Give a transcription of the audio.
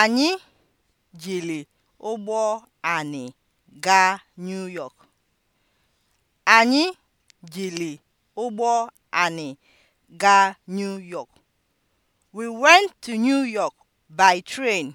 Anyị jiri ụgbọ anị gaa New York. Anyị jiri ụgbọ anị gaa New York. We went to New York by train.